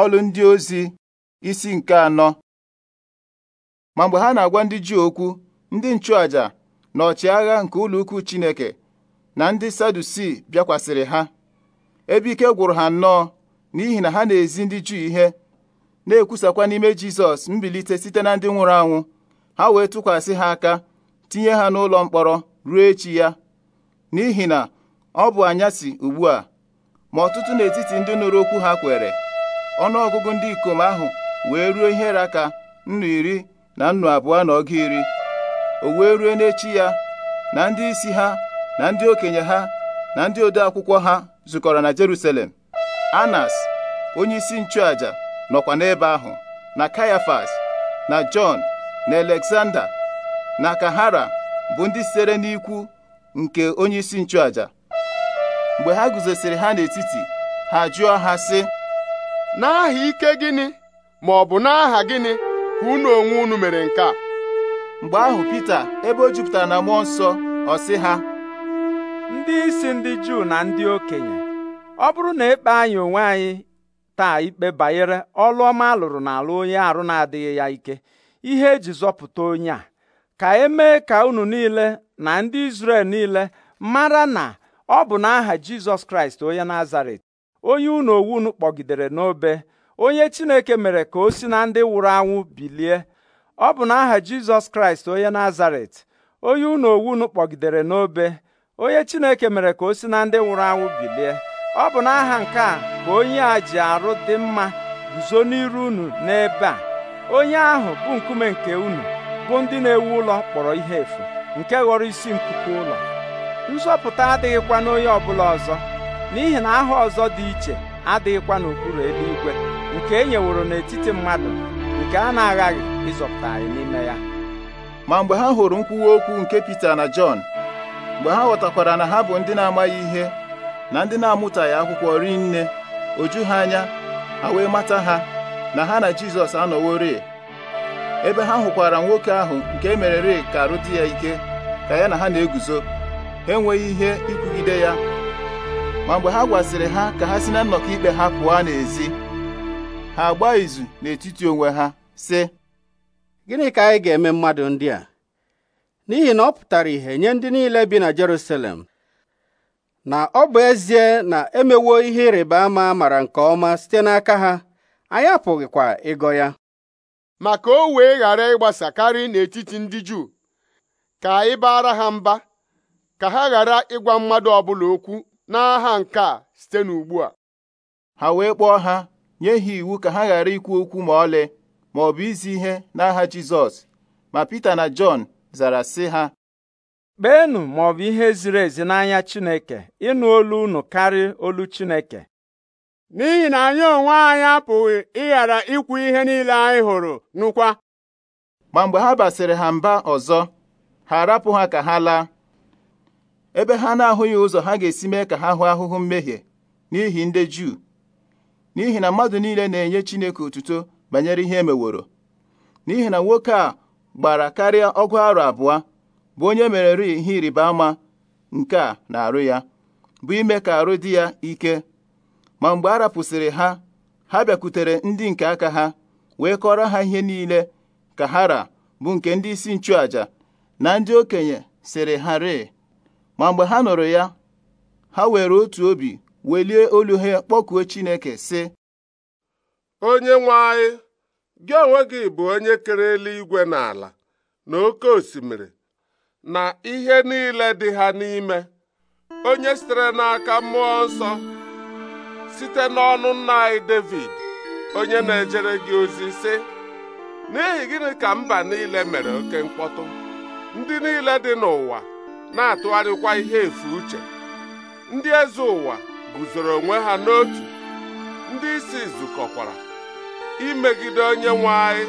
ọlụ ndị ozi isi nke anọ ma mgbe ha na-agwa ndị Juu okwu ndị nchụaja na ọchịagha nke ụlọ ukwu Chineke na ndị Sadusi bịakwasịrị ha ebe ike gwụrụ ha nnọọ n'ihi na ha na-ezi ndị Juu ihe na-ekwusakwa n'ime Jizọs mbilite site na ndị nwụrụ anwụ ha wee tụkwasị ha aka tinye ha n'ụlọ mkpọrọ ruo echi ya n'ihi na ọ bụ anyasị ugbu a ma ọtụtụ n'etiti ndị nụrụ okwu ha kwere ọnụọgụgụ ndị ikom ahụ wee ruo ihe raka nnu iri na nnu abụọ na ọga iri o wee ruo n'echi ya na ndị isi ha na ndị okenye ha na ndị ode akwụkwọ ha zukọrọ na Jerusalem Anas onye isi nchụaja nọkwa n'ebe ahụ na Kayafas na Jọn na Alexander na Kahara bụ ndị sitere n'ikwu nke onye isi nchụaja mgbe ha guzosiri ha n'etiti ha jụọ ha sị n'aha ike gịnị ma ọ bụ n'aha gịnị ka unu onwe unu mere nke a mgbe ahụ Pita ebe o jupụtara na mmụọ nsọ ọ sị ha ndị isi ndị Juu na ndị okenye ọ bụrụ na ekpe anyị onwe anyị taa ikpe banyere ọlụ ọma alụrụ n'ala onye arụ na-adịghị ya ike ihe eji zọpụta onye a ka emee ka unu niile na ndị Izrel niile mara na ọ bụ n'aha Jizọs Kraịst onye Nazaret onye unu unu kpọgidere n'obe onye Chineke mere ka o si na ndị nwụrụ anwụ bilie ọ bụ n'aha Jizọs Kraịst onye Nazaret onye unu unu kpọgidere n'obe onye Chineke mere ka o si na ndị nwụrụ anwụ bilie ọ bụ n'aha nke a ka onye a ji arụ dị mma guzo n'iru unu n'ebe a onye ahụ bụ nkume nke unu bụ ndị na-ewu ụlọ kpọrọ ihe efu nke ghọrọ isi nkuku ụlọ nzọpụta adịghịkwa n'onye ọbụla ọzọ n'ihi na aha ọzọ dị iche adịghịkwa n'okpuru igwe nke e nyeworo n'etiti mmadụ nke a na-aghaghị ịzọpụta anyị n'ime ya ma mgbe ha hụrụ nkwuwa okwu nke Pita na Jọn mgbe ha ghọtakwara na ha bụ ndị na-amaghị ihe na ndị na-amụtaghị akwụkwọ ri nne oju ha anya ha wee mata ha na ha na Jizọs anọworị ebe ha hụkwara nwoke ahụ nke e mere ka arụ dị ya ike ka ya na ha na-eguzo ha enweghị ihe ikwugide ya ma mgbe ha gwasịrị ha ka ha si na nnọkọ ikpe ha pụọ n'ezi ha agba izu n'etiti onwe ha sị gịnị ka anyị ga-eme mmadụ ndị a n'ihi na ọ pụtara ihe nye ndị niile bi na Jerusalem na ọ bụ ezie na emewo ihe ịrịba ama mara nke ọma site n'aka ha anyị apụghịkwa ịgọ ya ma ka o wee ghara ịgbasa karị n'etiti ndị Juu ka anyị baara ha mba ka ha ghara ịgwa mmadụ ọbụla okwu n'agha nke a site n'ugbu a ha wee kpọọ ha nye ha iwu ka ha ghara ikwu okwu ma ọlị ma ọ bụ izi ihe n'agha Jizọs ma Pita na Jọn zara sị ha kpeenụ ma ọ bụ ihe ziri ezi n'anya Chineke ịnụ olu unu karịa olu Chineke n'ihi na anyị onwe anyị apụghị ịghara ikwu ihe niile anyị hụrụ nụkwa ma mgbe ha basịrị ha mba ọzọ ha arapụ ha ka ha laa ebe ha na-ahụghị ụzọ ha ga-esi mee ka ha hụ ahụhụ mmehie n'ihi ndị Juu n'ihi na mmadụ niile na-enye Chineke otuto banyere ihe emeworo n'ihi na nwoke a gbara karịa ọgụ arọ abụọ bụ onye mere ihe ịrịba ama nke a na-arụ ya bụ ime ka arụ dị ya ike ma mgbe a rapụsịrị ha ha bịakwutere ndị nke aka ha wee kọrọ ha ihe niile ka ha ra bụ nke ndị isi nchụaja na ndị okenye sịrị ha ree ma mgbe ha nụrụ ya ha were otu obi welie olu ha kpọkuo Chineke sị onye nwe anyị gị onwe gị bụ onye kere eluigwe na ala na oke osimiri na ihe niile dị ha n'ime onye sitere n'aka mmụọ nsọ site n'ọnụ nna anyị David onye na-ejere gị ozi sị n'ihi gịnị ka mba niile mere oke mkpọtụ ndị niile dị n'ụwa na-atụgharịkwa ihe efu uche ndị eze ụwa guzoro onwe ha n'otu ndị isi zukọkwara imegide onye nwe anyị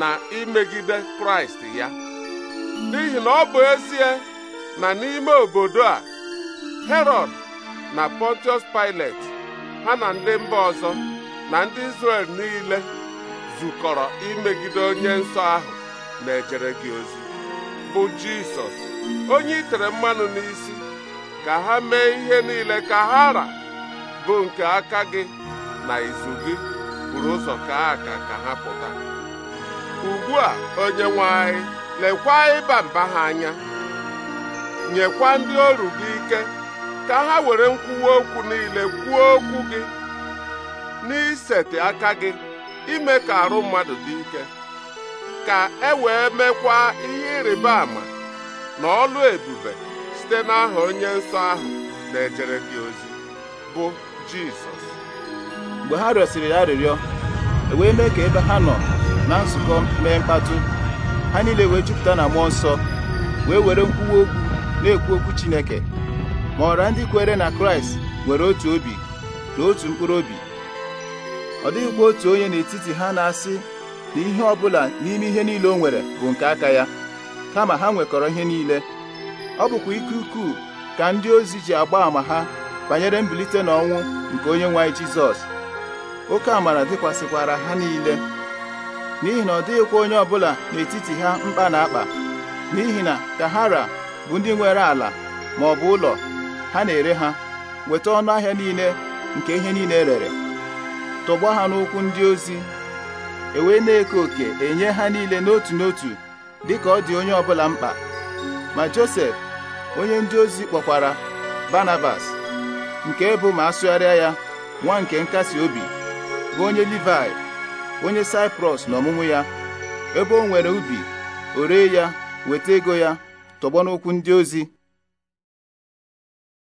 na imegide kraịst ya n'ihi na ọ bụ ezie na n'ime obodo a herod na pontius pilate ha na ndị mba ọzọ na ndị izrel niile zukọrọ imegide onye nsọ ahụ na-ejere gị ozi bụ Jisọs onye itere mmanụ n'isi ka ha mee ihe niile ka ha ra bụ nke aka gị na izu gị buru ụzọ ka aka ka ha pụta ugbu a onye nwanyị anyị lekwa ịba mba ha anya nyekwa ndị ọrụ gị ike ka ha were nkwụwa okwu niile kwuo okwu gị n'iseti aka gị ime ka arụ mmadụ dị ike ka e wee mekwa ihe ịrịba ama na ọlụ ebube site n'aha onye nsọ ahụ na-ejere gị ozi bụ Jizọs mgbe ha rịọsịrị ya arịrịọ e wee mee ka ebe ha nọ na nzukọ mee mkpatụ ha niile wee jupụta na mmụọ nsọ wee were nkwuwa okwu na-ekwu okwu Chineke ma ọra ndị kwere na Kraịst nwere otu obi na otu mkpụrụ obi ọ dịghịkwa otu onye n'etiti ha na-asị na ihe ọ bụla n'ime ihe niile o nwere bụ nke aka ya kama ha nwekọrọ ihe niile ọ bụkwa ike ukwuu ka ndị ozi ji agba àmà ha banyere mbilite n'ọnwụ nke onye nwe anyị Jizọs oke amara dịkwasịkwara ha niile n'ihi na ọ dịghịkwa onye ọbụla n'etiti ha mkpa na akpa n'ihi na ka bụ ndị nwere ala ma ọ bụ ụlọ ha na-ere ha weta ọnụ ahịa niile nke ihe niile e rere tọgbọ ha n'ụkwụ ndị ozi ewee na-eke oke enye ha niile n'otu n'otu dịka ọ dị onye ọbụla mkpa ma Josef onye ndị ozi kpọkwara Barnabas nke bụ ma asụgharịa ya nwa nke nkasi obi bụ onye Livai onye Saiprọs ọmụmụ ya ebe o nwere ubi o ya weta ego ya tọgbọ n'ụkwụ ndị ozi